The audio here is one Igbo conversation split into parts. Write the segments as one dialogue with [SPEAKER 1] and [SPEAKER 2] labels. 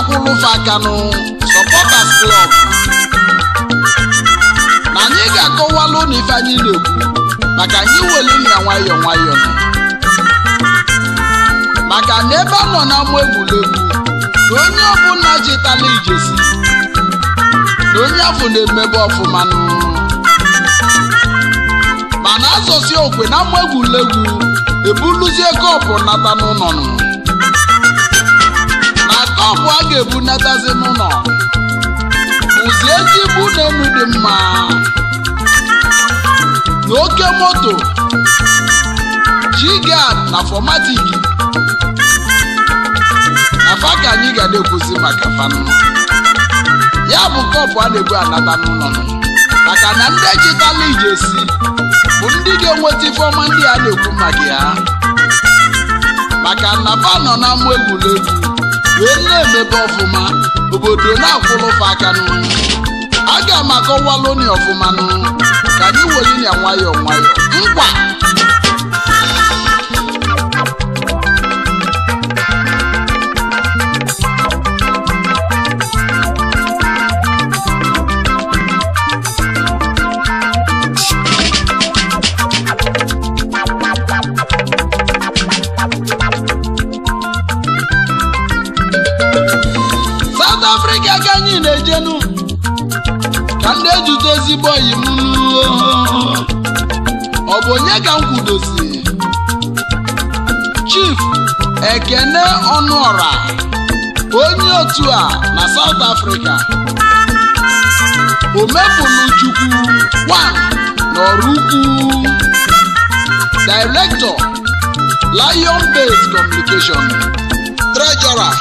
[SPEAKER 1] akwụrụ fakanụ supporters klọb na anyị ga-akọwalụ n'ife anyị na-ekwu maka anyị were ya nwayọọ nwayọọ maka na ebe a nọ n'ama egwuregwu na onye ọbụla chịtala ijesi na onye afọ na-emebe ọfụma mana asọsi okwe na ama egwuregwu ebuluzie kọpụ nata n'ụlọ nụ akwa a ga-ebunatazi n'ụlọ bụzi ezigbo ụlọelu dị mma na oke moto jigad na fọmatik na fa ka anyị ga na-ekwuzi maka fanụ ya bụ kọpụ a na-ebu anata n'ụlọ maka na ndị ejitala esi bụ ndị ga-enweta ifeọma ndị a na-ekwu maka ya maka na fa nọ na egwuregwu wee na-emebe ọfụma obodo na aka akanụ aga m akọwalụ ọfụma ọfụmanụ ka anyị were ya nwayọọ nwayọọ mkpa jenu ka ndị ejutozigbo oyi m ọ bụ onye ka m chief ekene ọnụọra onye otu a na south africa omefuluchukwu wan n'ọrụkwu director lion Base communication treasurer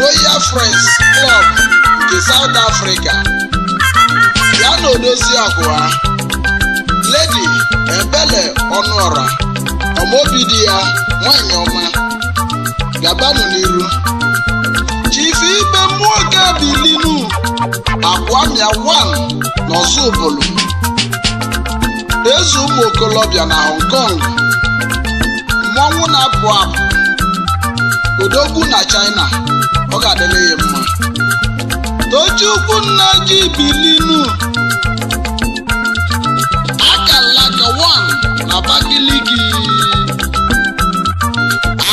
[SPEAKER 1] royal friends club nke South Africa ya na Odoziakụ ha Lady Ebele Ọnụọra ọmọbidi di ya nwanyị ọma gabanụ n'iru chife ibe mmụọ gabilinu akwamia wan n'Ozubulu eze ụmụ okolobia na Hong Kong mmọnwụ na-apụ apụ odogwu na China ọ ga-adịla ya mma tochukwu nna ji bilinu akalaka 1 na Abakaliki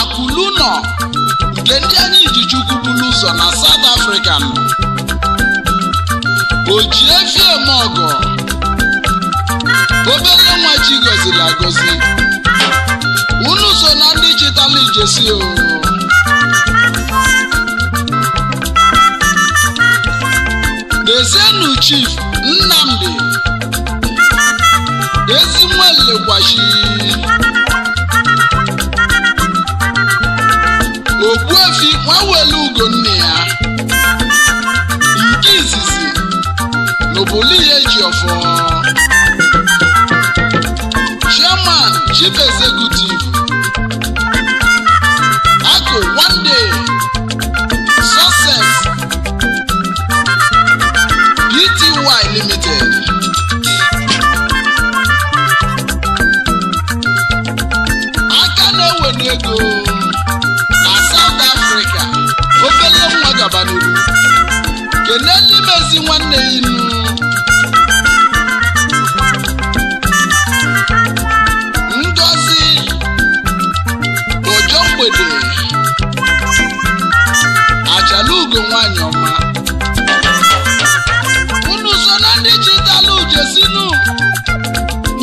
[SPEAKER 1] akụlu nọ nke ndị anyị na chukwu bulu ụzọ na South Africa ojiefiemeọgọ obere nwa chi gọziri agọzi unu so na ndị chịtala ijesi o Dezienu Chief Nnamdi Ezinwalegwashi Ogbuefi nwawele ugo nne ya nke izizi ihe eji ọfọ Chairman Chief Executive kene n'imezi nwanne ya inu ngozi ojo mgbede achalugo nwanyị ọma unu so na ndị chitalu jesinu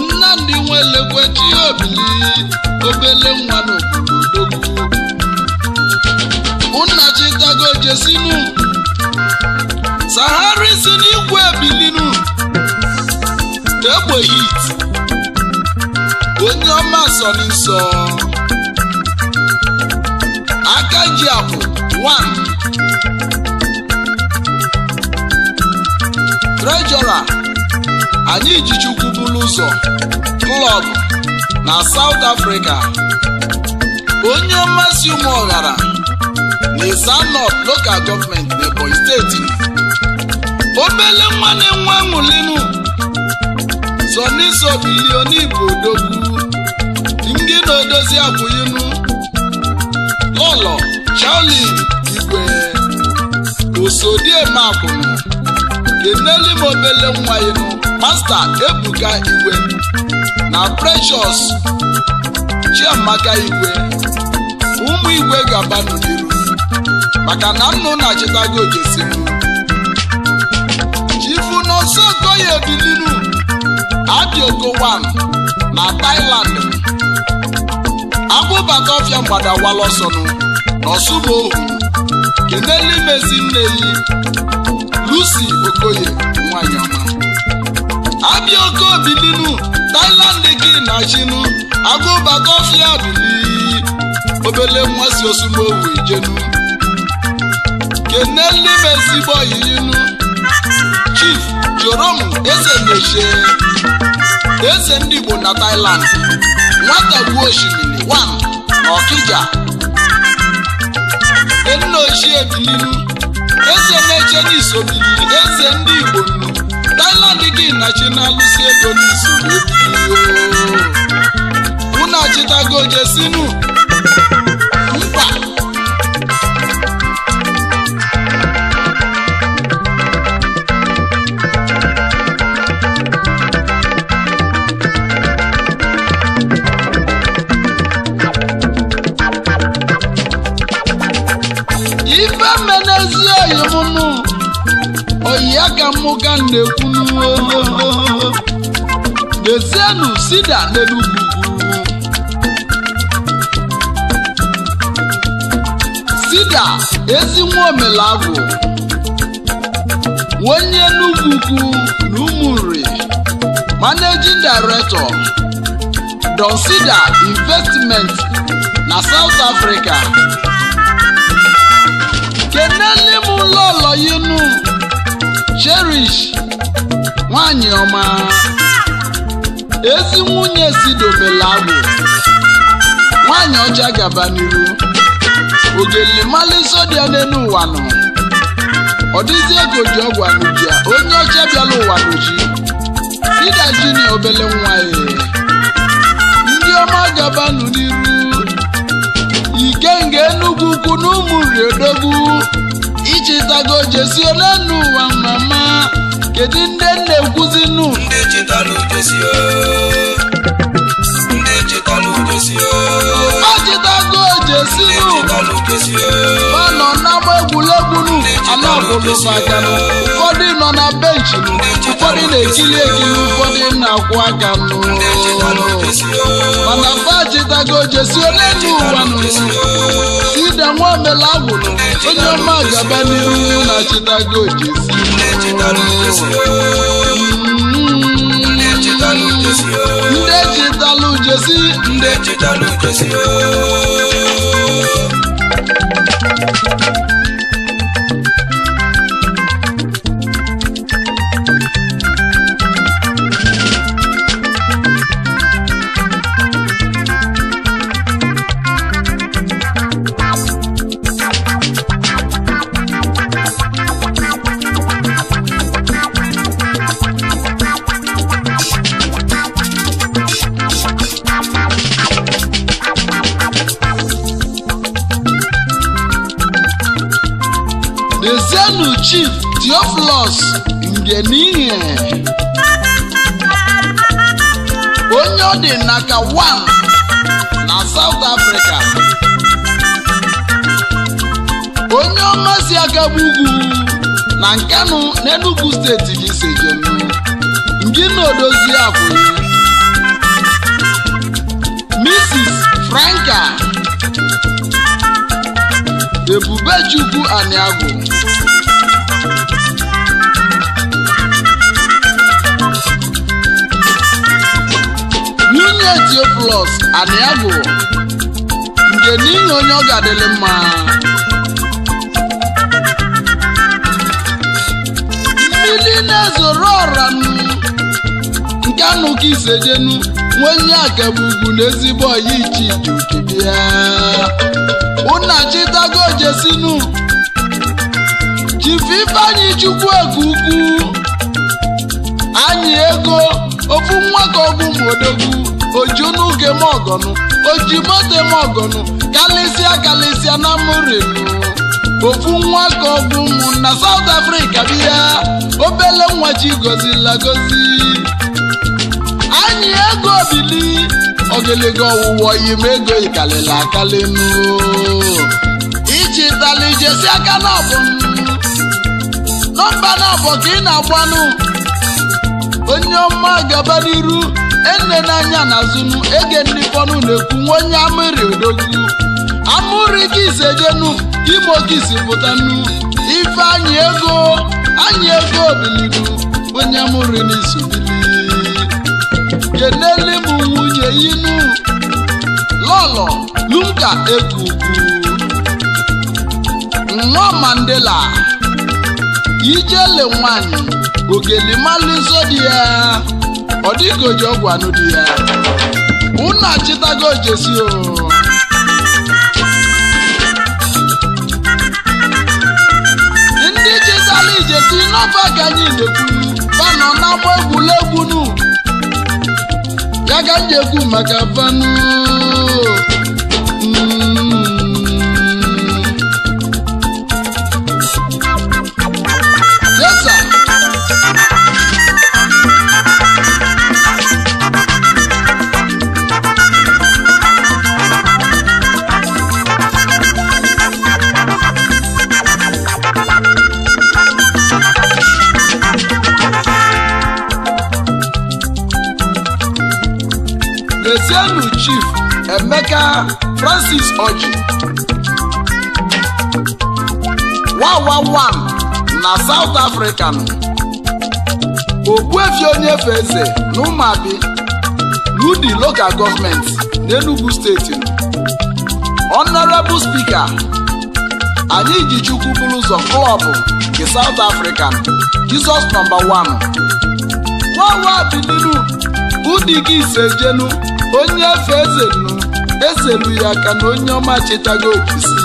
[SPEAKER 1] nnamdị nwelekwe chi obili obele nwa n'obodo nna chitago jesinu sahara isi n'igwe bilinu egbeghị itu onye ọma sọrọ nsọ aka ji akwụ 1 trejọra anyị ji chukwu ụzọ klọb na South afrịka onye si ụmụ ọghara na Esa North Local Government na steeti obele nwa na-enwe aṅụlinu sọniso bilionibụ odogwu ndị na-edozi abụinu ụlọ chali igwe osodiemakụnụ keneli m obele nwa ịnụ. masta ebuka igwe na preshọs chiamaka igwe ụmụ igwe gaba n'iru maka na nnụ na chịtago jesi Tayo Dilinu Adiogowam na Thailand agbụbata ọfịa mgbada walọsọnụ n'ọsụba ohu kenelu nne yi Lucy Okoye nwanyị ọma abịa oke obilinu Thailand gị na chinu agụbata ọfịa obere obele nwa si osubo ohu ijenu bọ yi bọyinu chief m eze na-eche. eze ndị Igbo na Thailand nwata gbuo osimiri wan na Okija nna eze na-eche n'iso biliri eze ndị Igbo nnu Thailand gị M na-alụsi ego n'iso unu achịtago jesinu aka mụga na-ekwu n'ezienụ sida n'enugwu sida ezi nwa omelagwụ onye Enugwu na Umuri managing director Don investment na South Africa kenele m ụlọ ụlọ yinu cherish nwanyị ọma ezi nwunye si dobela agbụ nwanyị ọcha gaba n'iru ogelimali sodia n'elu ụwa nọ ọ dịzi ego ji ọgwa onye ọcha bịala ụwa n'oji ịdaji na obele nwa ya e. ndị ọma gabanụ n'iru ikenga enugwu ukwu na ụmụ ichitago jesi ole n'ụwa mama kedu ndị na nkwụzi nụ ndị Jesi ọ nọ n'ama egwuregwu anabụlụ nụ ụfọdụ nọ na benchi ụfọdụ na-ekili ekili ụfọdụ na-akwụ aka mana fajitago Jesi onye ụwa ide nwamela agwụrụ onye ọma gaba n'iru na chitago Jesi ndị ejitalụ jesi ndị ejitalụ jesi Thank you. theophilus ngenihe onye ọ dị naka 1 na south africa onye ọmazi agaba ugwu na nkanu n'enugu steeti gị sejem ndị na-odozi abụ mrs franka ebubechukwu aniagwu nwanne Theophilus Aniagwu nke n'ihi onye ọ ga-adịlị mma mmiri na-ezoro ọra nke anụka isejenu nwenye akabu ugwu na ezigbo ọya ichijukibia ụna chitago jesinu chifu ifeanyị chukwu ego ukwu anyị ego ofu nwa ka ọgwụ ojunuge mogonu ojimode mogonu galisia galisia na murinu ofu nwa ka ọgwụ ụmụ na South Africa bịa obele nwa chi gozila gozi anyị ego bili ogiliga ọwụwa yim ego ikalili akalinu ichitali jesi aka na nọmba na abụ ka ị na-agbanụ onye ọma gaba n'iru ene n'anya na azụnụ ege ndị fọnụ na-ekwu nwa onye amịrị odogwu amụrị kisi ejenu imo pụta pụtanụ ife anyị ego anyị ego onye amụrị n'isi jeneli m nwunye inu lọlọ lunka ekuku nwa mandela ijele nwanyị ogeli dị ya ọ dịghị oji ọgwụ anụ dị ya unu achịtago jesi o ndị chịtara ijesi n'ọba ka anyị na-ekwu fanọ agba egwuregwu nu ya ka m ji ekwu maka fanụ baba Francis Oji one, na South African Ogbuefi Onyefe Eze na Umuabi Ludi local government n'Enugu steeti Honourable speaker anyị ji chukwu bụrụ ụzọ klọbụ nke South African Jesus number one wawa bilinu ụdị gị isejenu onye efe eze esebu ya ka na onye ọma chetago okisi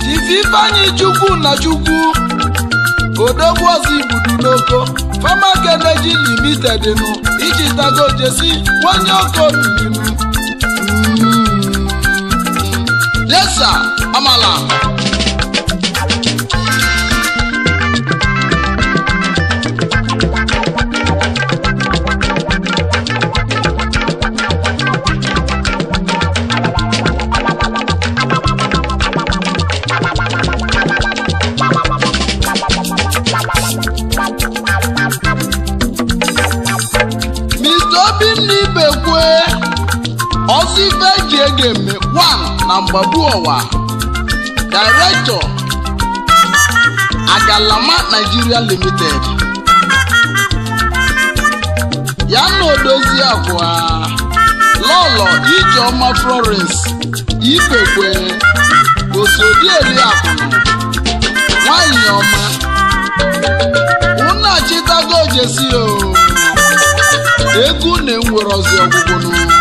[SPEAKER 1] Chief Ifeanyi Chukwu na Chukwu odogwu ọzọ ibudu n'oko Fama Kelechi Limited nụ ichitago jesi nwanye okobiinu hmm. yesa amala Ekeme 1 na Mgbagbuowa Director Agalama Nigeria Limited ya na odozi akwa Lọlọ Ijeọma Florence Ikekwe Osodi Eliakụ nwanyị ọma unu achịtago e egwu na enwere ọzi ọgwụgwụ n'ụwa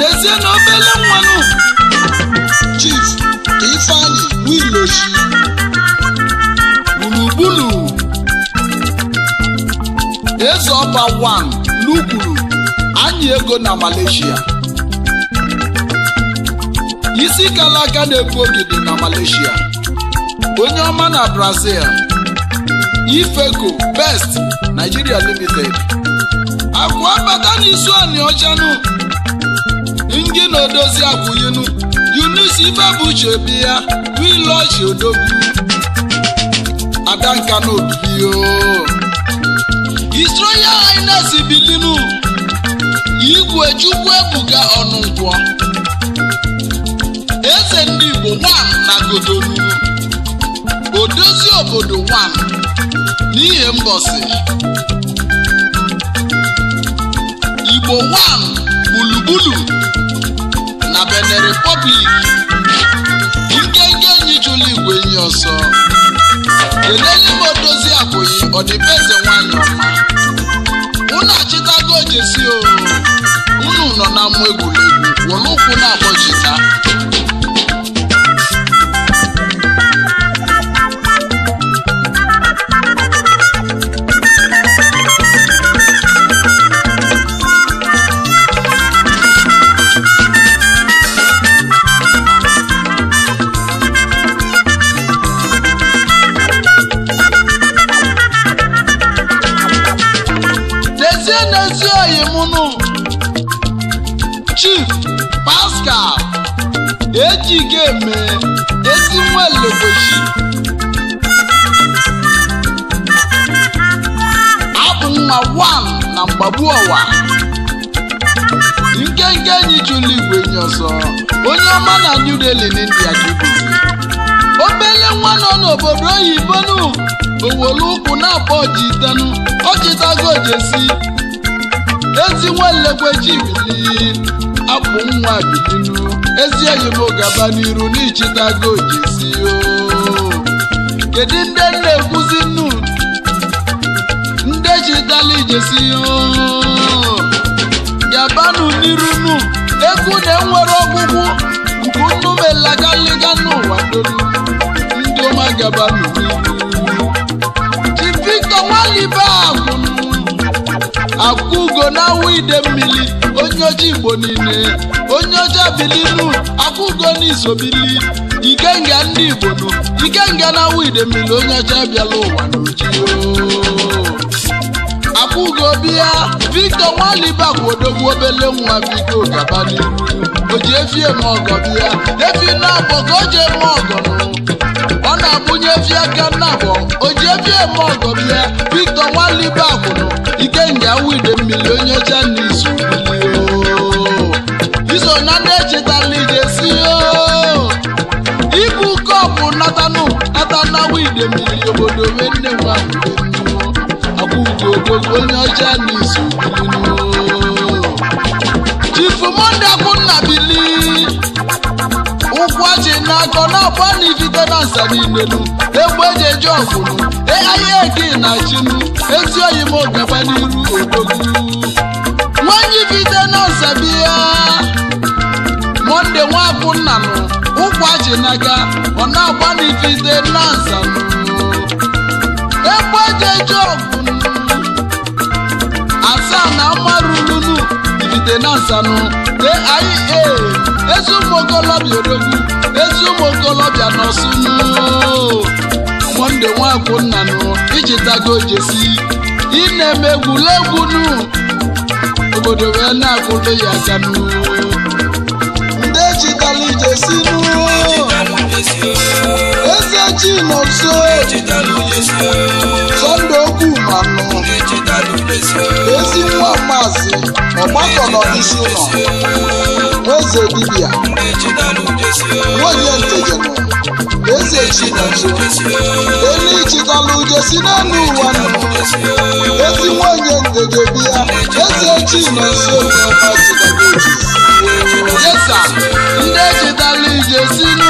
[SPEAKER 1] n'ezie na obele nwanụ chief ka ifeanyị gburugburu eze ọba wan n'ukwuru anyị ego na Malaysia isi kala aka na-ekwu ogidi na Malaysia onye ọma na Brazil Ifeco Best Nigeria Limited akwa abata n'isu anị ani ọjanụ na odozi ife bụ Ibebuche bi ya wiloji odogwu adanka na obibio isroya ines bilinu igwe chukwu ebuga ọnụngwọ eze ndị Igbo nwan na godolu odozi obodo nwan n'ihe mbọsị Igbo nwan gburugburu na Benin Republic nke enyi chụlụ igwe enyi ọsọ keleli m odozi abụghị ọdịbeze nwanyị ọma unu achịtago jesi o unu nọ na mmụ egwuregwu were ụkwụ na-agbọjita chigeme ezi nwa lobochi abụ nwa wan na mgbagbu ọwa nke nke enyi chụlụ igwe enyi ọzọ onye ọma na New elu n'India dubizi obele nwa nọ n'obodo ibonu owolu ụkwụ na-akpọ ọji itenu ọchịtago ojesi ezi nwa nlekwe chibili abụ nwa bilinu ezi enyi m gaba n'iru n'ichitago goji si kedu ndị na-ekwuzi nnu ndị chitala ije si gabanụ n'iru nnu ekwu na enwere ọgwụgwụ nke nnu melagaliga n'ụwa dolu ndị ọma gabanụ n'iru chi Victor akwụgo na awụ ide mmiri onye ojii Igbo niile onye ọjọọ bililu akwụgo n'izobili ikenga ndị igbo nụ ikenga na widemili onye ọjọọ bịala ụwa n'ojii akwụgo bịa Victor Nwalibakwa odogwu obele nwa biko gaba n'ihu o ji efie m ọgọ bịa efi na-abọ ka o ji eme ọgọ ọ na-agbụnye efi aka nnabọ o ji efie m ọgọ bịa Victor Nwalibakwa ikenga wide mmiri onye ọcha onye ọcha chifu monde akwụnna bili ụkwụ ọchị na-akọ n'ọkwa n'ifite na nsa n'imelu egbe eji eje ọfụrụ ahịa eke na chinu ezi oyi m n'iru ogogu nwanyị ifite na nsa monde nwa nna nụ ụkwụ ọchị na-aga ọ na-agba na nsa egbe eji ọfụrụ asaa na mmarululu digide na nsanụ aia ezi ụmụ okolobịa odogwu ezi ụmụ okolobịa n'ọsụnụ monde nwakwụ nnanụ iji tago jesi ị na-eme egwuregwunu obodo wee na-akwụdo ya kanụ ndị ejitala jesi nụ chinonso Sunday Ogwumanu ezi nwa maazị ọgbakọrọ isi ụlọ eze dibịa nwunye ntegenụ eze chinonso elu ichitala ujesi n'elu ụwa nụ ezi nwunye ntegebia eze chinonso yes sir ndị echitala ujesi n'ụwa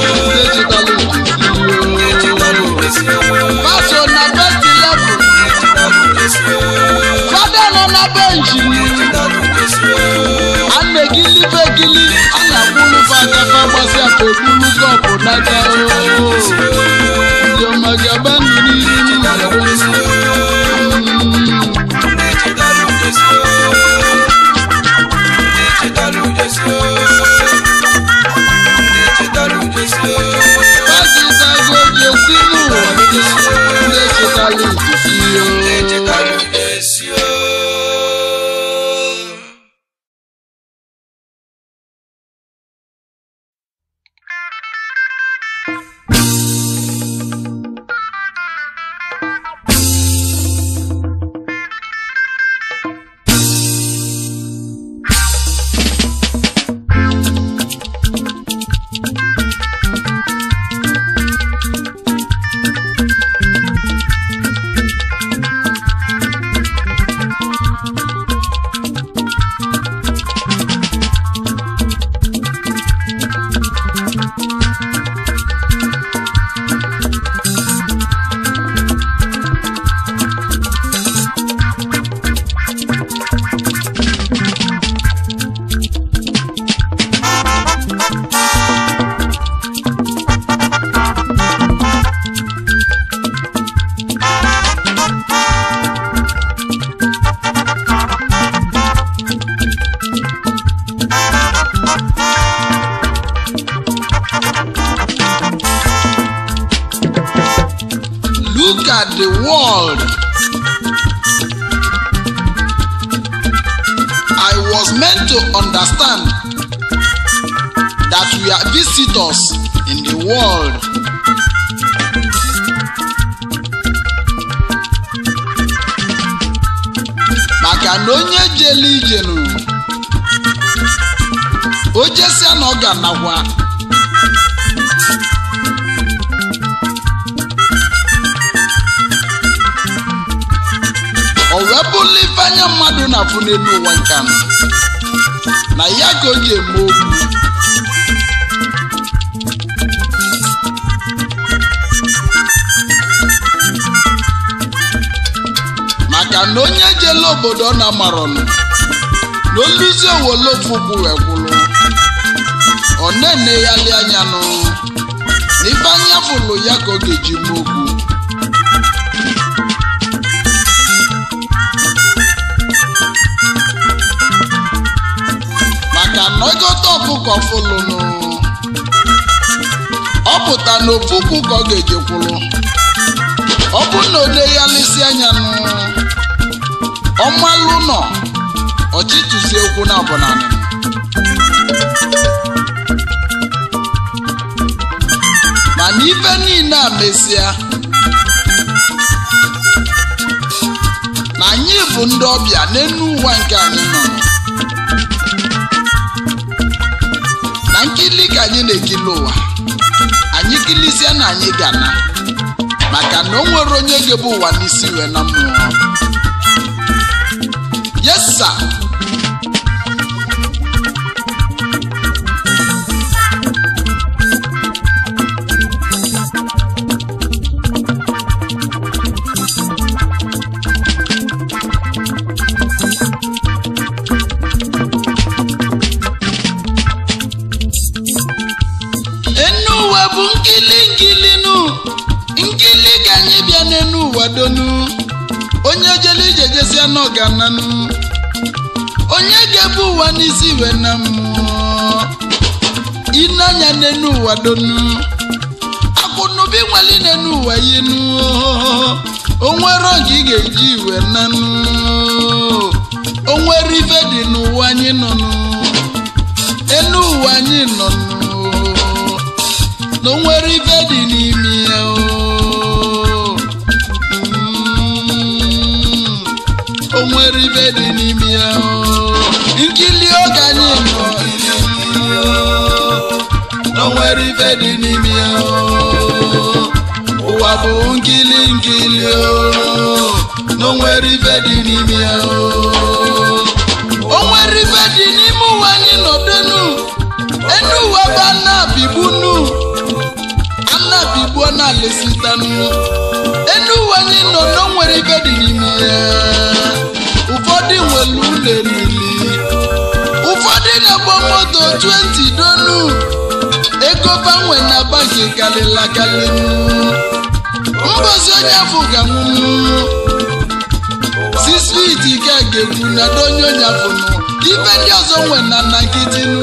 [SPEAKER 1] òkú lúgọ̀ kò dákẹ́ ooo. ka na onye jela ijenu o jesia na ọ ga-anakwa o wee bụla ife anya mmadụ na-afụ n'elu ụwa nka na ya ka o ji eme okwu E maka na onye jele obodo na marọnụ na olizi owole fụbu ekwụlụ ọ na-ene ya lị anya nụ n'ife anya fụlụ ya ka ọ ga-eji mụ okwu maka na ọgọta ọfụkọ fụlụ nụ ọ pụta na ofu ka ọ ga-eji kwụlụ ọ bụrụ na o ya lisi anya nụ ọmalụ nọ ọchịtụsi okwu na abụnanị mana ibe niile a mesịa na anyị bụ ndị ọbịa n'elu ụwa nke anyị nọ na nkili ka anyị na-ekili ụwa anyị kilizie na anyị gana maka na o nwere onye ga-ebu ụwa n'isi wee na mmụọ yes sir. nkili nkili nu nkili ka anyị bịa n'enu ụwa jele ije na n'ọgananụ onye ga-ebu ụwa n'isi iwe na mmụọ ineanya n'enu ụwa donu akụnụbi nweli n'enu ụwa yinu onwere oge ị ga-eji iwe na nanụ onwere ife dị n'ụwa anyị nọnụ enu ụwa anyị nọnụ na onwere ife dị n'ime ya ibe dị n'ime ya nkili oge anyị nọ o nwere ibe dị n'ime ya ụwa bụ nkili nkili na o nwere ibe dị n'ime ya o nwere ibe dị n'ime ụwa anyị nọdenu enu ụwa bụ anabigbunu anabigbuo na lesitanu enu ụwa anyị nọ na o ibe dị n'ime ya ụfọdụ nwere ụlọ emili ụfọdụ na-egbo moto 20 donu ego banwe na banki karịla karị
[SPEAKER 2] mbozi onye afọ
[SPEAKER 1] ga-anwụnwu sisfit ike ga-egwu na donye onye afọ ibe ndị ọzọ nwe na nakidinu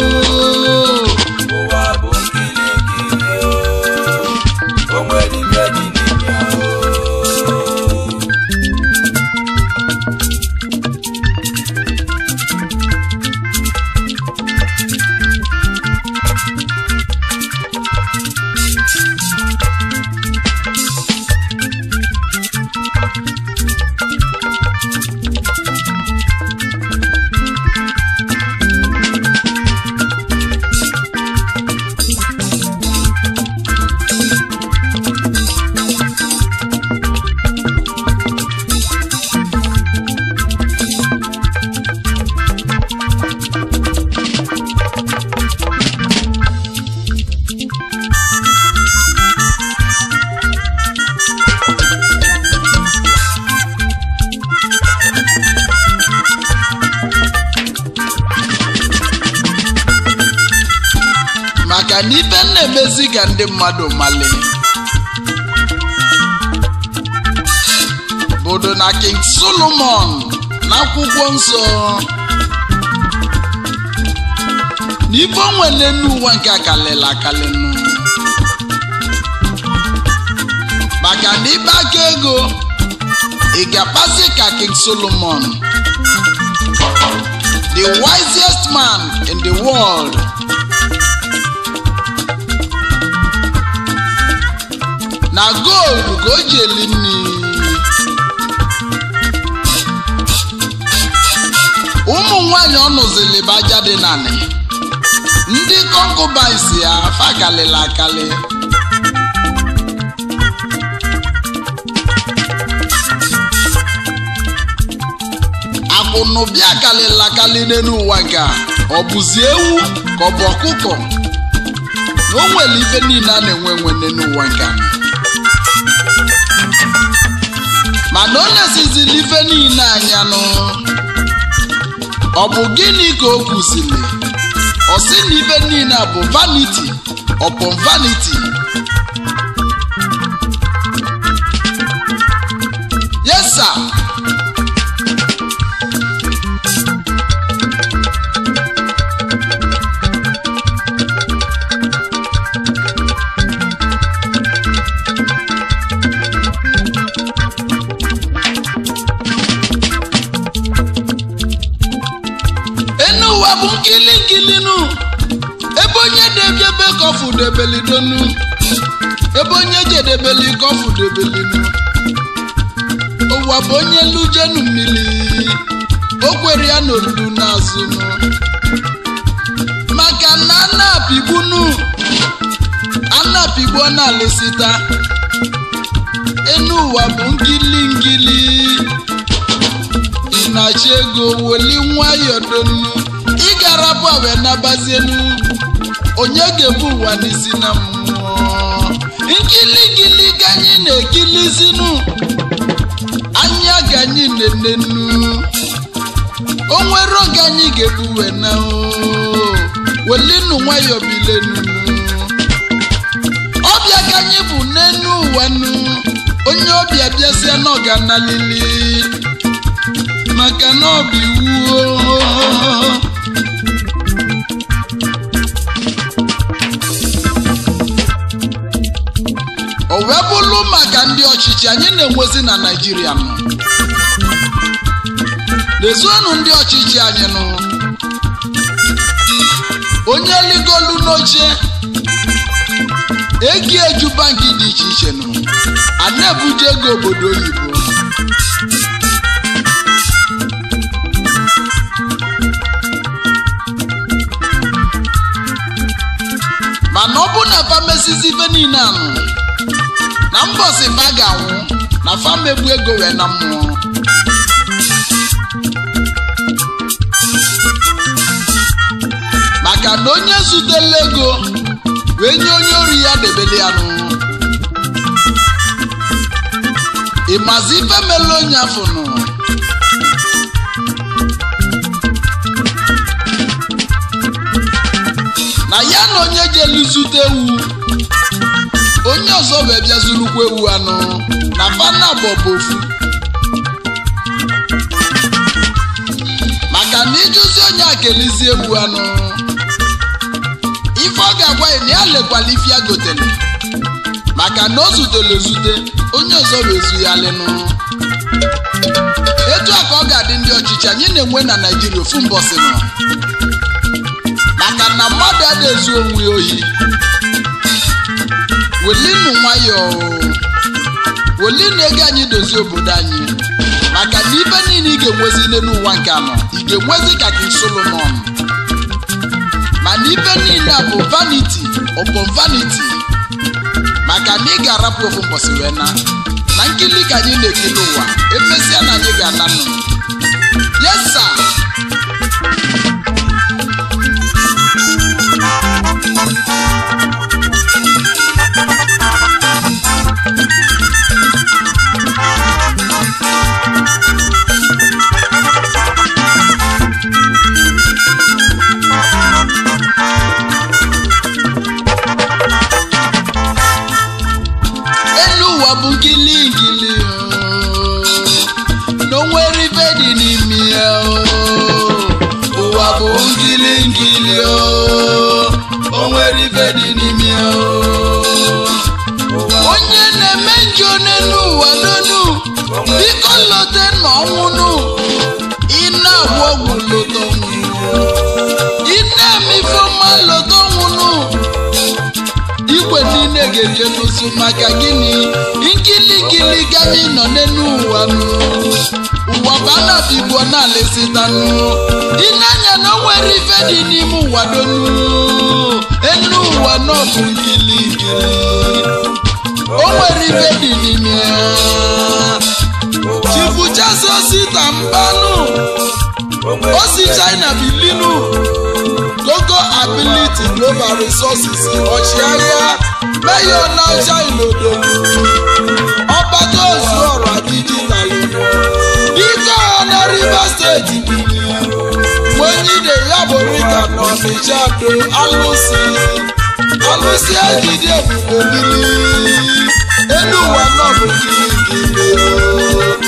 [SPEAKER 1] Si gande mado male Bodo na King Solomon Na kubwonson Nifon wene nou wankakalela kalen nou Bakande i bakego I e gapase ka King Solomon The wisest man in the world na goldu ka o ji eli ụmụ nwanyị ọ nụzili bụ dị nanị ndị kọnkụbans ya fakalịla akali akwụnụ bịa akali ewu ka ọ bụ ọkụkọ na o nwere ife niile a na-enwe enwe n'elu mana ọ na-esizili ife niile anya nụ ọ bụ gịnị ka o kwuzili ọ sị na ife niile bụ vaniti ọpụ vaniti kɔfu debeli donu ebo nye dze debeli kɔfu debeli nu owu abo nye ludzenu mili okweria nolu nazu nu maka na ana bibu nu ana bibu ɔna lesita enu wa bo ngilingili inatsego woli nwayɔ donu igarabu awɛ na bazienu. onye ga-ebu ụwa n'isi na mmụọ gili ganyị na-ekilizinu anya ganyị na-enenu onwere oge anyị ga-ebuwe na welinu nwayọọ bilenu ọbịa ganyị bụ n'enu ụwanụ onye ọbịa bịasịa n'ọganalili maka na ọ bụ iwu wee bụrụ maka ndị ọchịchị anyị na-enwezi na naijiria nọ lezienụ ndị ọchịchị anyị nụ onye ligolu n'oche egi eju banki dị iche iche nụ ana na ego obodo oyibo mana ọ bụ na famesizi ife niile na si ma ga-anwụ na famegbu ego wee na mmụọ maka na onye zutela ego wee nye onye ori ya debele ya n'ụwa ịmazi ife mere onye afọ nụ na ya na onye ga zute ewu ọzọ bụ bịa zurukwu ewu anụ na fana bụ ofu maka na ijụzi onye a ewu ewu anụ ife ọ ga-agwa ya na ya lekwala ife ya gotere maka na o zutere ezute onye ọzọ bụ ezu ya nọọ etu a ka ọ ga-adị ndị ọchịchị anyị na-enwe na naijiria ofu mbọsị nọ maka na mmadụ adịghị ezu onwe ya ohi welinu nwayọọ na ego anyị dozie obodo anyị maka na ibe niile ị ga-enwezi n'ụwa nke anọ ị ga-enwezi ka gị solomon mana ibe niile bụ vaniti ọbụ vaniti maka na ị ga-arapụ ofu mbọsị wee na na nkili ka anyị na-ekiri ụwa emesịa na anyị ga ala nụ yes ma ọnwụnụ ọgwụ lodo ine lodo nwụnụ igwe niile ga-eje n'ụsụ maka gịnị nkilikili gami nọ n'elu ụwa ụwa bụ anabibuo na alesitanụ ineanya na o nwere ife dị n'ime na-azụ osita mbanụ
[SPEAKER 2] osi china
[SPEAKER 1] bilinu local ability global resources ọchịagha meyo naija ilodo ọkpata ozu ọra dijitalụ dike na rivers steeti wenyide ya borika na ọnịcha do alụsị alụsị ejide ebube mmiri elu ụwa nọ bụ gịnị gịnị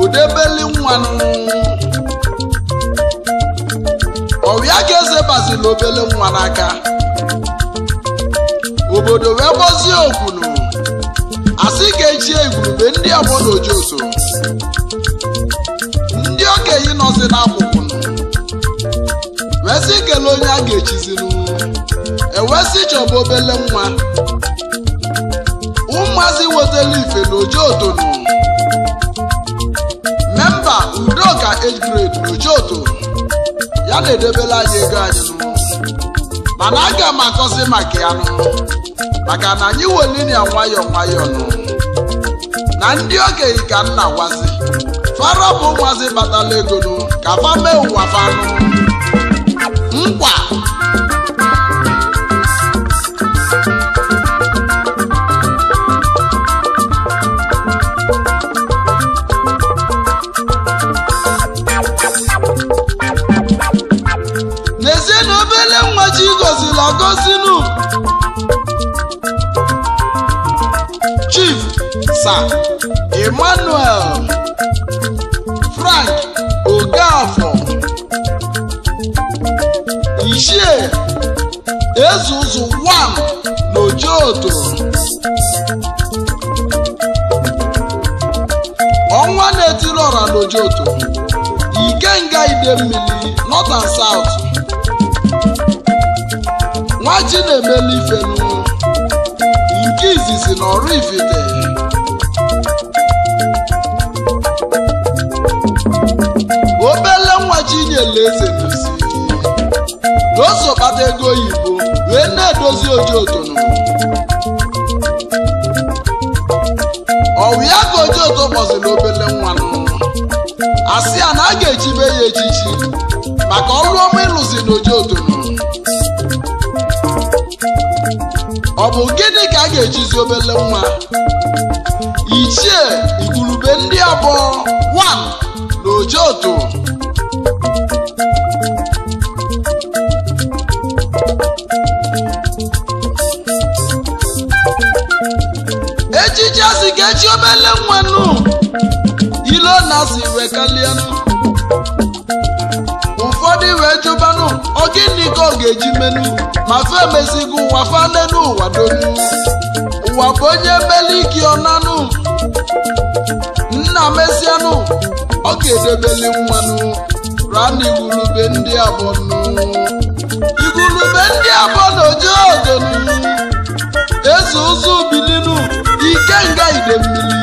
[SPEAKER 1] udebeli nwanụ ọrịa ka eze bazili obele nwa n'aka obodo wee gbozie okwunu asị ka echie igwurube ndị obodo ojiụso ndị okenye nọzi n'akwụkwụ wesị kele onye a ga-echiziri ewesị chọba obele nwa ụmụazị wetala ife na otonu n'uche otu ya na-edebela anyị ego anyị mana aga m akọzi maka ya maka na anyị welinia nwayọ nwayọ nụ na ndị okenye ka nna gwazi fara bụ nwazi batala ego nụ ka fa mee ụwa nkwa emmanuel frank ogafọ ichie ezuzu 1 n'ojoto ọnwa na-etiri ọra Ike ikenga idemmili north and south nwaji na-emeli ifenu nke izizi na ọrụ ifite oji otono ọwụ ya ka oji oto kpọziri obele nwa n'ụwa asị ya na a ga-echibe ya echichi maka ọrụ ọma ịlụzi na oji ọ bụ gịnị ka a ga-echizi obele nwa Eji obele nwannu ilo na-asị wekalịanụ ụfọdụ wee jụbanụ gịnị ka ọ ga-eji menụ ma fe mezigo ụwa fane n'ụwa donu ụwa bụ onye meli ike ọnanụ nna mezianụ ọ ga-edebeli mmanụ. rana igwurube ndị abọnụ igwurube ndị abọ na oje odonu eze ụzọ ide idemmili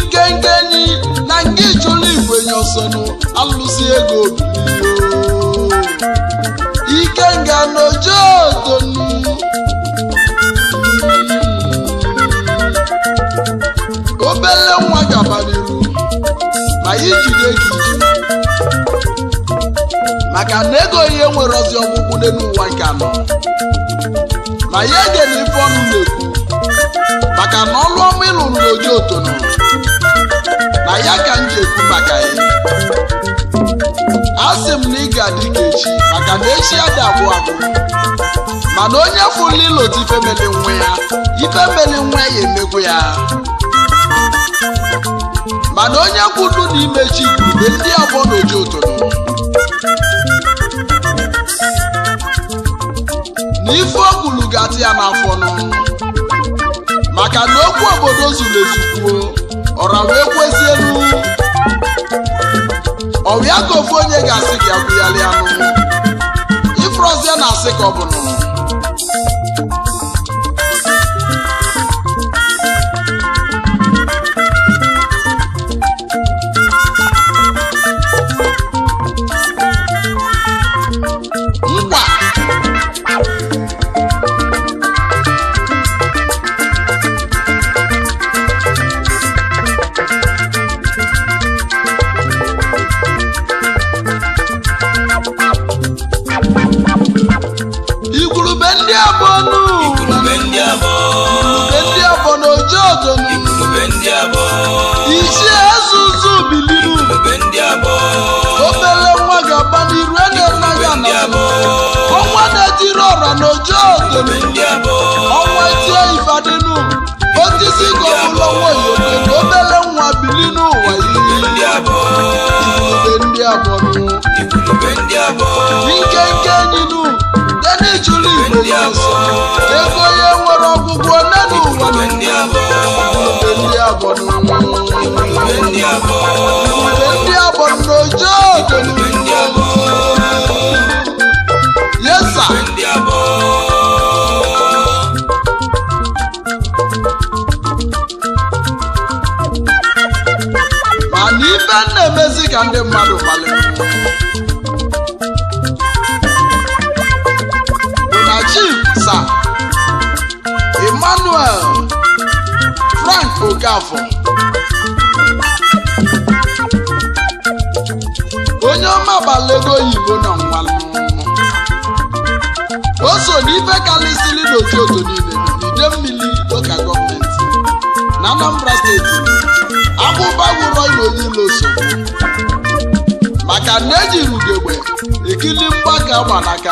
[SPEAKER 1] nke enyi na nke ichụla igwe ya ọsọnụ alụsị ego Ike ikenga n'ojeotonu obele nwa gabariru ma ijide gị maka na ego ihe nwere ozi ọgwụgwụ n'ụwa nke anọ ma ya egena ife ọnụ na maka na ọlụ ọma ịlụrụ n'oji otono na ya ka m ji ekwu maka ya a sị m na ị ga-adị ka echi maka na echi ya dị abụọ abụọ mana onye fụla ilota ifemeli nwa ya ifemeli nwa ya emegwu ya mana onye kwudu na imechi igwurube ndị abụọ n'oji otono na ife o ga-atị ya n'afọ n'ọnụ maka na okwu obodo zuru ezukwuo ọra wee kwezielu ọwịa ka ofu onye ga-asị gị agwụyalị anụ ya na-asị ka ọ bụ ọjọọ ògòmí ọmọ etí ìfàdínú ó ti otu gọ́ọ̀mù lọ́wọ́ ìyókè obere bẹ̀rẹ̀ ń n'ụwa bìlí nù wáyé. ndị abụọ nkenke nínú tẹ́lẹ̀ ìjúlù ego ya nwere ọgwụgwọ na ụwa ndị abụọ ka ndị mmadụ kpaliri na chief sa emmanuel frank okafọ onye ọma gbalego oyibo na nwalụ o so n'ife karịsịrị n'otu otu niile n'ide mmiri ụka gọọmenti na anambra steeti abụba wụrọ iloyilo so maka na eji rugegbe ekili mgbaka gbanaka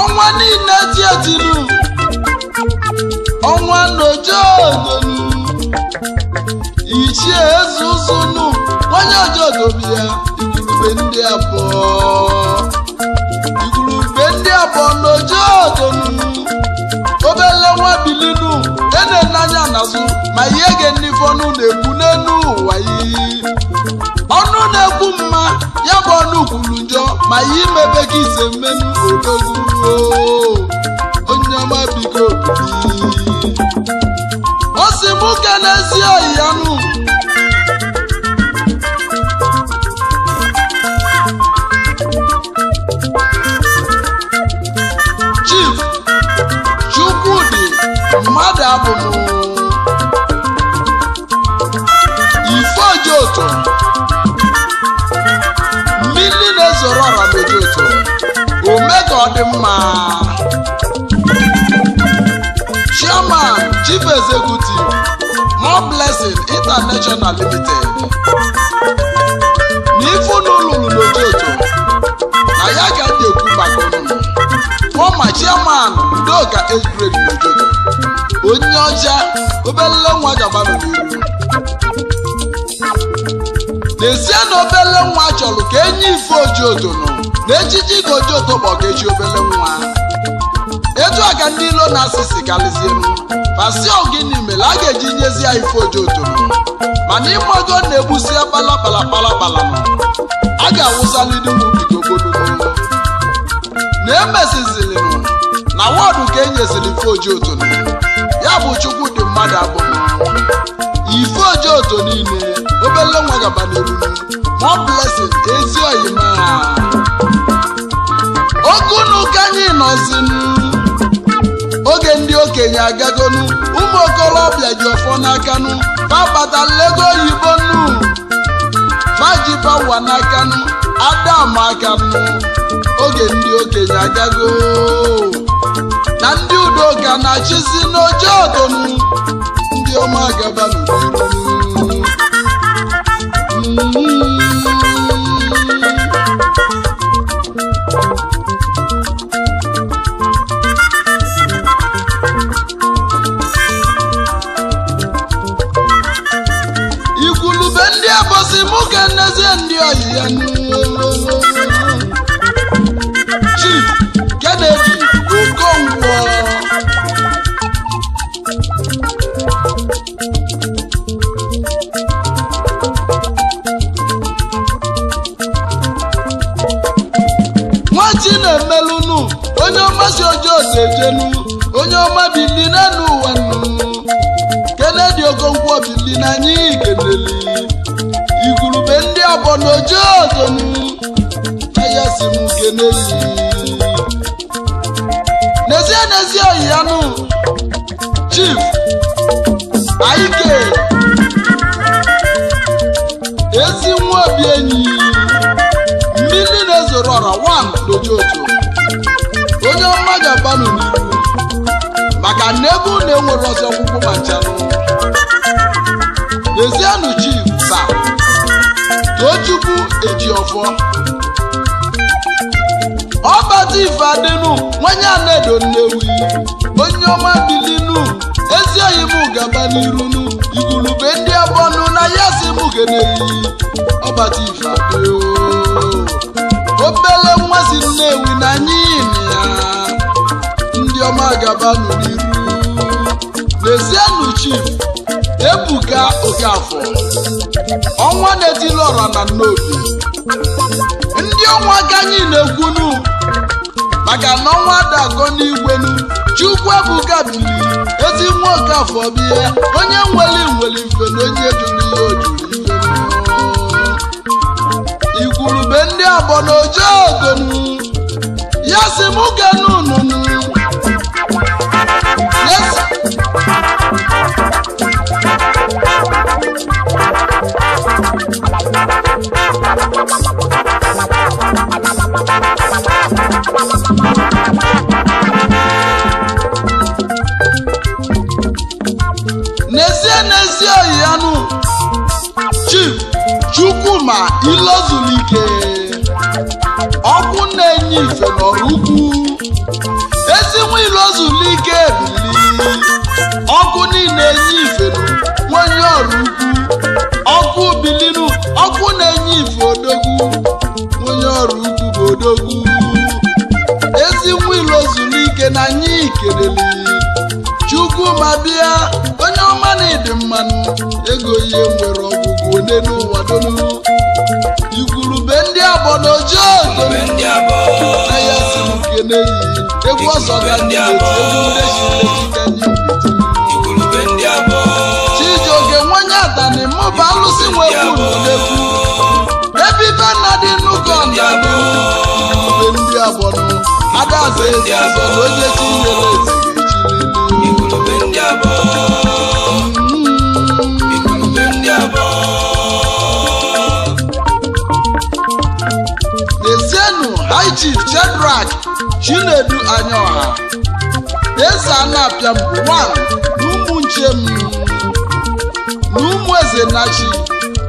[SPEAKER 1] ọnwa niile ti ọnwa nojeodolu ichie eze ụzụnụ onye ojeodobi ya igurube ndị abụọ igurube ndị abụọ nojeodolu obele nwa bilinu wee na-ele anya n'azụ ma ihe ga-enife ọnụ na egbu n'elu ụwa iyi ọnụ na egbu mma ya bụ ọnụ kwuru njọ ma ihe imebe gị ise mmenu odoguruo onye ọma biko osi m ke n'ezi ya anụ dị mma chairman chief executive more blessing international limited na ife unu na ya ga ndị ekwu maka unu former onye ọcha nwa gabarụ n'iru n'ezie na obele nwa chọrọ ka enye ife ojoto nụ na ejiji gojioko kpọgeji obele nwa etu a ka ndị ilo na-asịsị karịzie m pasi ogini mere a ga-eji nyezi ya ife ojiotoro mana ịmago na-egbusi kpalakpalakpalakpala a ga-awụsalidugogoloo na m. na wọdụ ka e nyeziri ife ojiotoro ya bụ chukwu dị mmadụ abụọ ife ojiotoro niile obele nwa gaba n'eruru more blessings ezi oyima okunu ka anyị nọzinu oge ndị okenye agagonu ụmụ okorobịa ji ọfọ n'akanu fabata lego oyibo nu fajibawa n'akanu aka akanu oge ndị okenye agago na ndị udoka na-achịzi n'oche ọdụnụ ndị ọma agaba n'udu sejenu onye ọma bili n'elu ụwa nnu kenedi ogongwo bili n'anya ikeleli igurube ndị ọgbọ n'oji ozonu ahịa si m keneli n'ezie n'ezie ọhịanụ chif aike ezi nwa obi enyi mmiri na-ezoro ọra wan n'oji ozonu onye ọma ji abanụ n'ihu maka na ebe unu enwere ọzọ ọgwụgwụ ma nchanụ lezienụ chi sa too eji ọfọ ọbata ife adịnụ nwanye anedo nnewi onye ọma bilinu ezi oyi m gaba n'irunu igurube ndị abọnụ na ya si m geneyi ọbata ife adịo obele nwa si nnewi na anyị gaba n'iru n'ezienụ chief ebuka okafọ ọnwa na-etili ọra na nnobi ndị ọnwa ka na ekwunu maka na ọnwa dakọ n'igwenu chukwu ebuka biri ezi nwa okafọ bie onye nweli nweli mfe na onye jụrụ ihe ojuru ikwurube ndị abọ na ojeogonu ya si mụ genu nunu n'ezie n'ezie oyi anụ chief chukwuma ilozulike ọkụ na-enye ife n'ọrụ ukwu ezinwa ilozulike bi na-enye ifelu nwanye ọrụ ukwu ọkụ bilinu ọkụ na-enye ife odogwu nwanye ọrụ ukwu bụ odogwu ezi nwa zuru ike na anyị ikeleli chukwu ma bịa onye ọma na ịdị mmanụ ego ihe nwere ọgwụgwụ ole n'ụwa donu igwurube ndị abọ na ojo aya si kene yi egwu ọsọ ga ndị egwu ndị ji arụsị nwe kwuru n'ekwu ebe ibe nna dị nnukwu nna bụ ndị abụọ agbọrọ adaze ezi azọ na onye chi nyere eze ezienu haiji jedrak chinedu anya ọha eze anapịa mbụ nwa na ụmụ nche m Izie Nnachi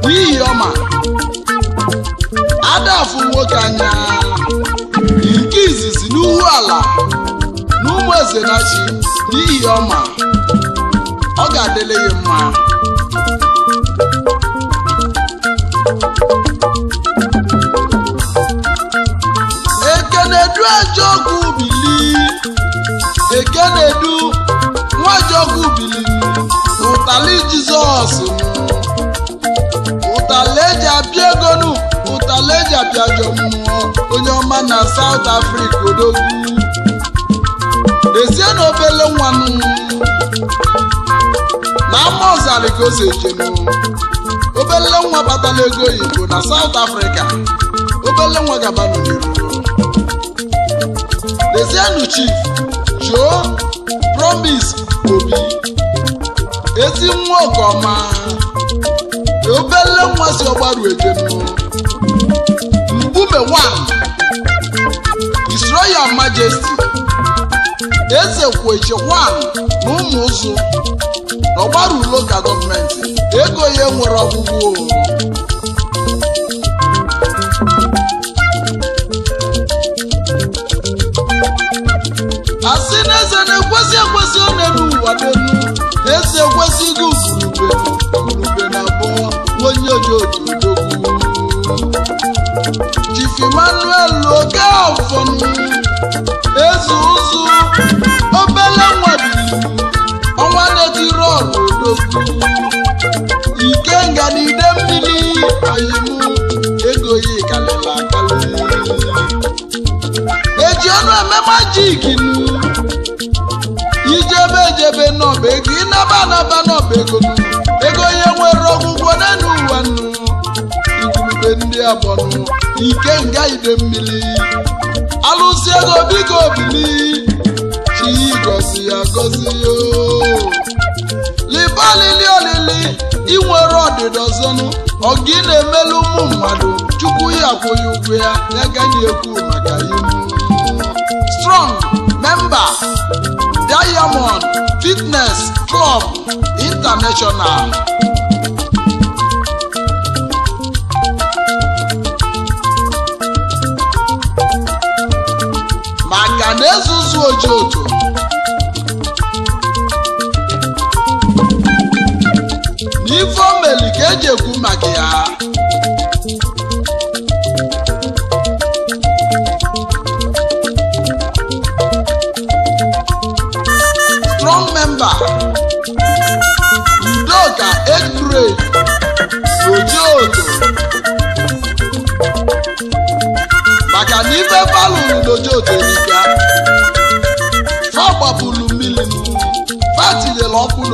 [SPEAKER 1] n'ihi ọma Adafu nwoke anya nke izizi n'ihu ala na n'ihi ọma ọ ga-adịle ya mma ekenedu ajọkwu bili ekenedu nwa ajọkwu bili ụtali Jizọs ụtaleji abịa egonu ụtaleji abịajọ mmụọ onye ọma na South Africa odogwu dezie na obele nwanụ na ama ka o si obele nwa batala ego oyibo na South Africa obele nwa gaba n'oyibo dezienu chief choo promise obi ezi nwa ọgọma obele nwa si ọgbaru ejem mbume one His Majesti, eze kweche one na ụmụ ụzụ na ọgbaru local gọọmenti ego ya nwere ọgwụgwụ asị na eze na-ekwesị ekwesị ọ na-enu ụwa eze ekwesị gị ugurube ojoojudogwu Chief Emmanuel Okafor eze ụzụ obele nwadili ọnwa na-etiri ọrụ odogwu na mmiri ayịmụ ego kalịla akalị eji ọnụ eme majik nu ijebe ejebe n'ọba ego ịnaba anaba n'ọba ego ego nwere ọgwụgwọ anụ igurube ndị abọnụ ike nga ide mmiri alụsị ego biko obili chi gosi ya gozi oh. liba olili olili inwere ọdịda ọzọnụ ọgị na-emelu ụmụ mmadụ chukwu ya akwụghị ụgwọ ya ya gaghị ekwu maka ihu strong member diamond fitness club international na-ezuzu oji ojo na ife ka eji ekwu maka ya strong member udoka edgrade oji ojo maka na ife balụ n'oji ojo erika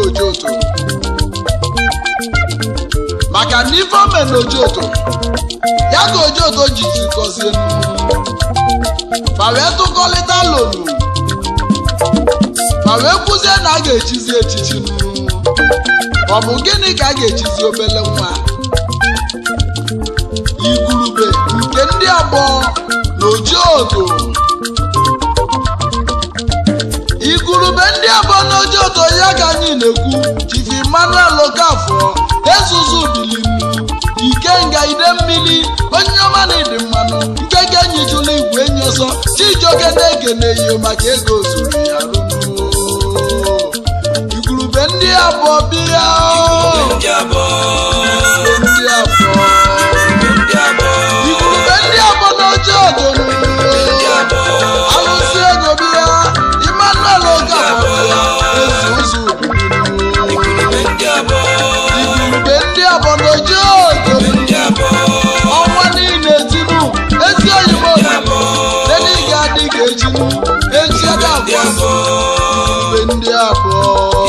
[SPEAKER 1] ojoto maka na ife na ojoto ya ka ojoto jiji gọzie ma wee tụkọlịta lonu ma wee kwuzie na a ga-echizi echichi ọ bụ gịnị ka a ga-echizi obele nwa igurube nke ndị agbọ na ojoto ebe ndị abụọ n'oche ụtọ ya ka anyị na-ekwu chief Emmanuel Okafor ezuzu ike nga ide mmili onye ọma na ịdị mmanụ nke ga-enyi igwe enyi ọsọ chijioke na maka ego zuru ya rụnuo igwurube ndị abụọ bịa Oh.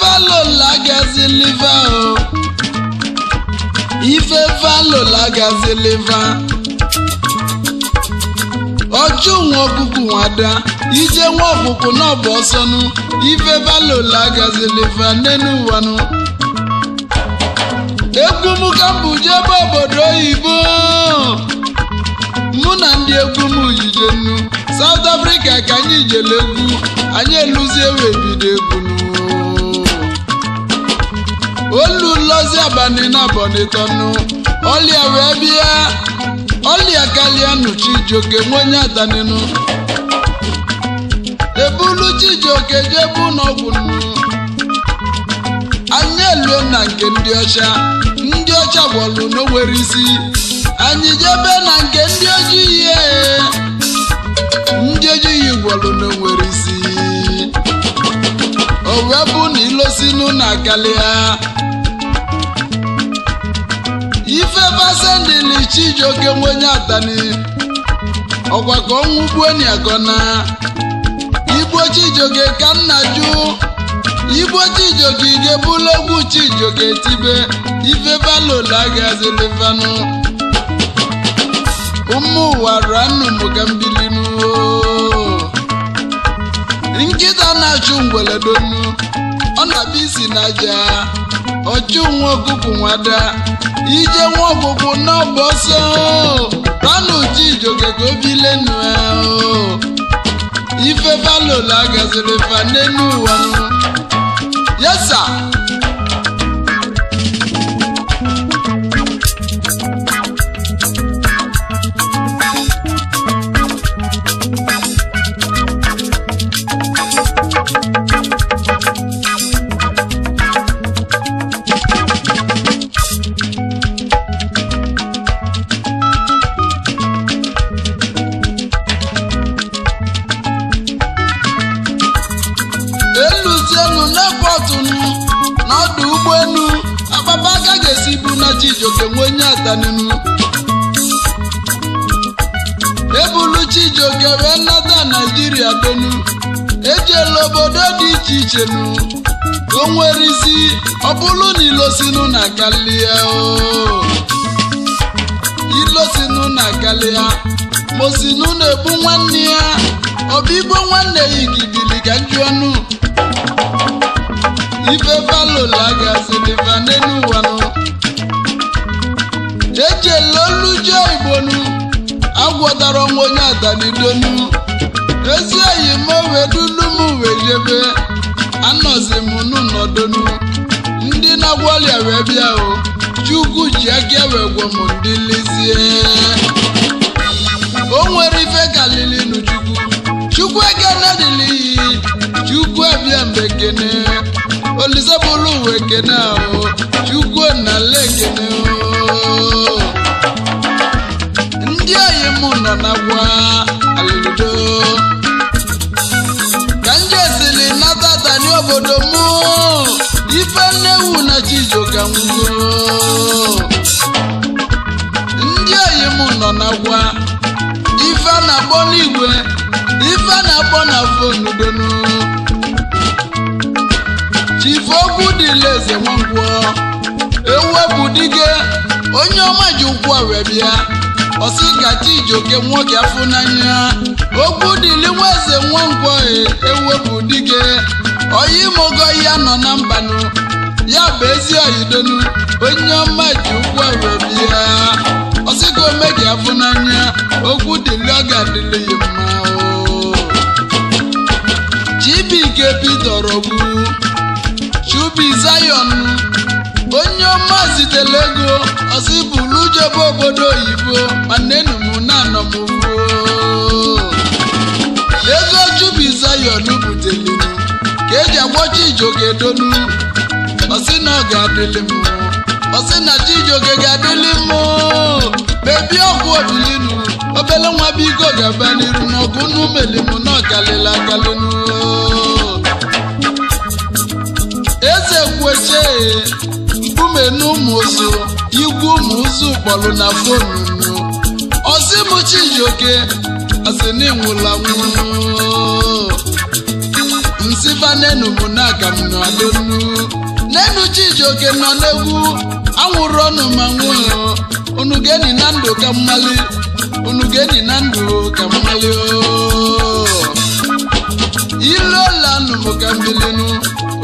[SPEAKER 1] valola gazi liva o ife valola gazi liva ọjọ́ nwa ọkụkụ nwada ije nwa ọkụkụ ọsọ nụ ife valo gazi liva n'enu ụwanụ egwu m ka m bụ jebe obodo oyibo mụ na ndị egwu m yije nnu South Africa ka anyị jele egwu anyị eluzie wee bido egwu n'ụwa olu nlozi abani na bonitonu ọlịa wee bịa ọlịa kalịa nụ chijioke nwenye adaninu ebulu chijioke jebu n'ọgwụ nnu anya elu na nke ndị ọcha ndị ọcha gwọlụ n'owere isi anyị jebe na nke ndị ojii ihe ndị ojii gwọlụ n'owere isi o wee bụ na ilosinu na ha ife basendili chijioke nwenye atani ọkwa ka ọnwụ gbuo niagona igbo chijioke ka nna ju. igbo chijioke ga-ebulu chijioke tibe ife balola gazilivanụ ụmụ ụwa ranụ mụga mbili nkịta na-achụ ngwere ọ na-abịa isi n'aja ọchụ nwa ọkụkụ nwada ije nwa ọkụkụ n'ọbụ ọsọ ranụ ijoke ka obi lenu ife balola gaziri fa ụwa yesa ọdụ ụgbọelu akpapa aka ga-esi bụ na Chijioke nwee onye ataninu ebulu Chijioke wee nnata Naijiria donu ejela obodo dị iche iche nu o nwere isi ọ bụrụ na ilosinu na kalia ilosinu na kalia mosinu na-egbu nwanne ya ọbịgbo nwanne ya igidili ga nju ọnụ ife balola gasị n'ife n'enu ụwanụ jeje lolu je igbonu agwọtara ọnwa onye adanidonu dozie eyi m wedulu m wee jebe anọzi m n'ụnọdonu ndị na-agwọrịa wee bịa o chukwu ji aka wee gwọ m ndị lezie o nwere ife kalili nu chukwu chukwu ekene na iyi chukwu abịa gene. olise bụrụ ụwa ahụ ahụ chukwu na lekene ndị anyị mụ nọ na gwa alụdo ka nje siri nata tani obodo mụ ife nnewu na chijioka nwụgo ndị anyị mụ nọ na gwa ife na-akpọ n'igwe ife na-akpọ na fonu donu ogwu dịla eze nwangwo ewu diga onye ọma ji ụkwụ wee bịa ọsị gachi ijoke nwoke afọ n'anya ogwu dịli nwa eze nwangwo ewepụ dike onye mogo ya nọ na mbanụ ya bụ ezi onye ọma ji ụkwụ wee bịa ọsị ka omeji afọ n'anya ogwu dịli ọ ga-adịli ya mma chibike bidoro ubi Zion onye ọma zitere ego ọsị bụrụ obodo oyibo mana enum na anọmụgbuo ego jubi Zion butelinu ka eji agwọchi ijogedonu ọsị na ọ ga-adịlị m ọsị na chijoge ga-adịlị m bebi ọgwụ obilinu obele nwa biko gaba n'iru n'ọgụ n'umelimu na ọkalịla akalịnu egboche mkume na ụmụ ụzụ igwe ụmụ kpọrọ na fonu ozimuchijioke ozinwụla nwụọ nenu nọ n'egwu anwụrụ ọnụ ma nwụọ unu na ndụ ka mmali unu na ndụ ka mmali oh. ilolanụ ka mbilinu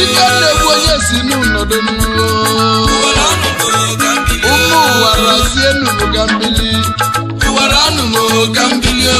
[SPEAKER 1] ike na-egbu onye si n'ụnọdụ n'ụlọ ụmụ ụwa razie n'ụbụga mmiri mbili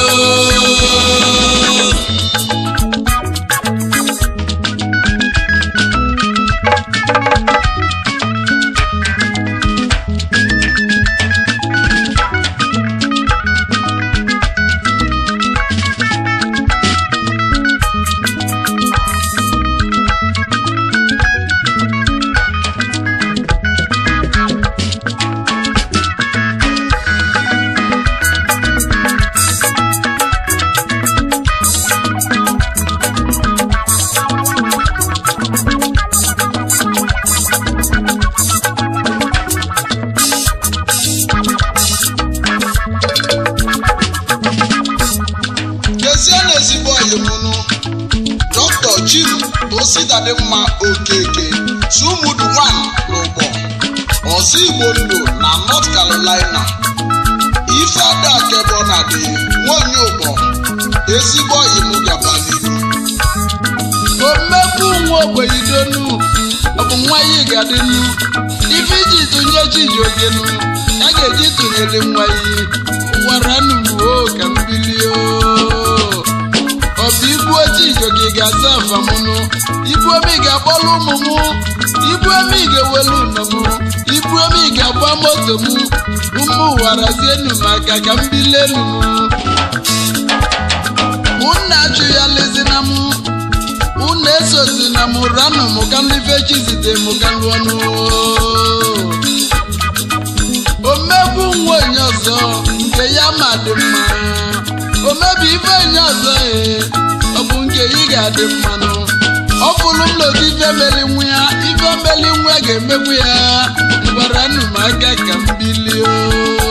[SPEAKER 1] maka ka m ya ụnna na mụ m ụnna na m ranụ m ka ndị fechi zite m ka lụọ nwa onye ọzọ nke ya ma dị mma omebi ife enye ọzọ ee ọ bụ nke ị ga-adị mmanụ ọ bụrụ m lodi ife meli nwa ya ife meli nwa ga-emegbu ya gwara nụ m aka ka m bilie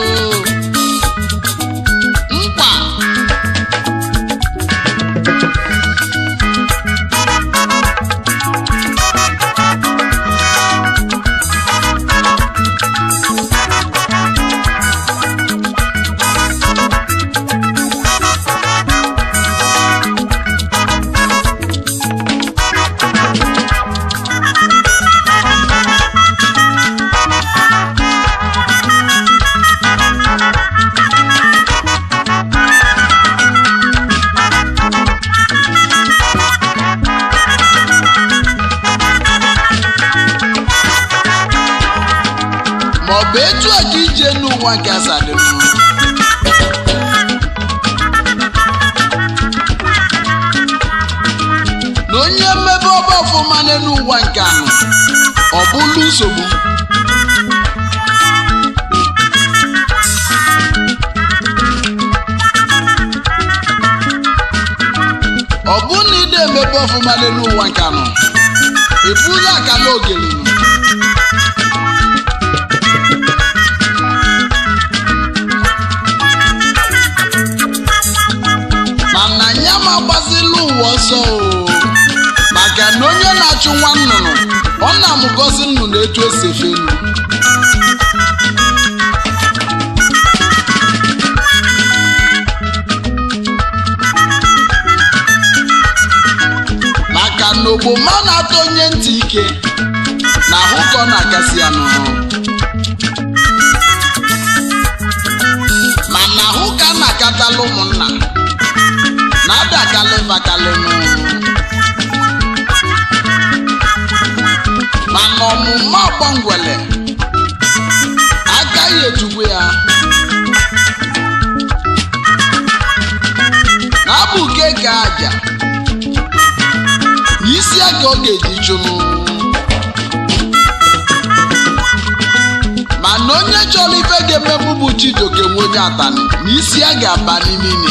[SPEAKER 1] ụzọ dị ije n'ụwa nke asaa dị mma na onye mmebe ọba ọfụma n'elu nke anụ ọ bụla nsogbu ọ bụ na ide emebe ọfụma n'elu ụwa nke anọ ị bụla akala ogele ya ma gbazila ụwa ọsọ maka na onye na-achụ nwa nnụnụ ọ na-amụgozi nnụnụ etu o si elu maka na ogbomọ na-atọ onye ntị ike na ahụ ka ọ na-agasị ya n'ọrụ mana ahụ ka a na akatala ụmụnna bacalé, bacalé mana ọmụmụ ọgbọngwele agaghị ejugbu ya na abụke ka aja n'isi aka ọ ga-eji chụrụ mana onye chọrọ ife ga-emebụ bụ chidoke nwoke atani na isi a ga-aba n'ime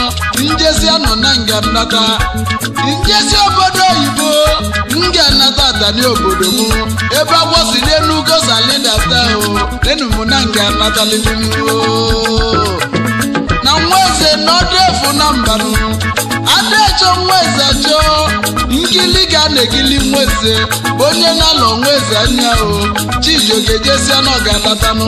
[SPEAKER 1] njezi anọ na nga nata njezi obodo oyibo nga nata atani obodo m ebe agwọsi n'enugo salidata o enum na nga nataliligo na nwa eze n'ọdụ efu na mbanụ adaecho nwa eze achọ nkili ga na-ekili nwa eze onye na-alọ nwa eze anya o chijiogejesia na ọ ga anatanụ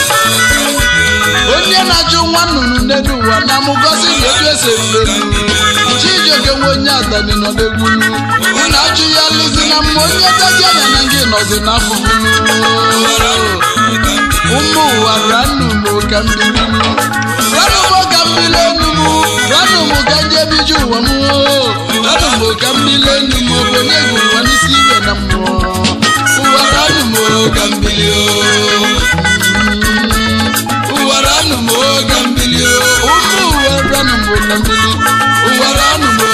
[SPEAKER 1] onye na-ajụ nwa nnụnụ n'elu ụwa na mụgozi na etu eserulelu chijioke nwe onye adani nọ n'egwu na ajụ ya lụzi na mma onye dadiana na gị nọzi n'afụfụ ụmụ ụwa ranụmụ ka mmiri ranụmụ ka mmiri enu m ranụmụ ka ndị ebiji ụwa m ranụmụ ka mmiri enu m obenye egwu ụwa n'isi ibe na mmụọ ụwa ranụmụ ka mmiri o owere anụ